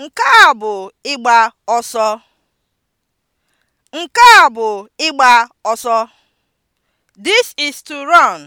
Nke a bụ ịgba ọsọ. Nke a bụ ịgba ọsọ. This is to run.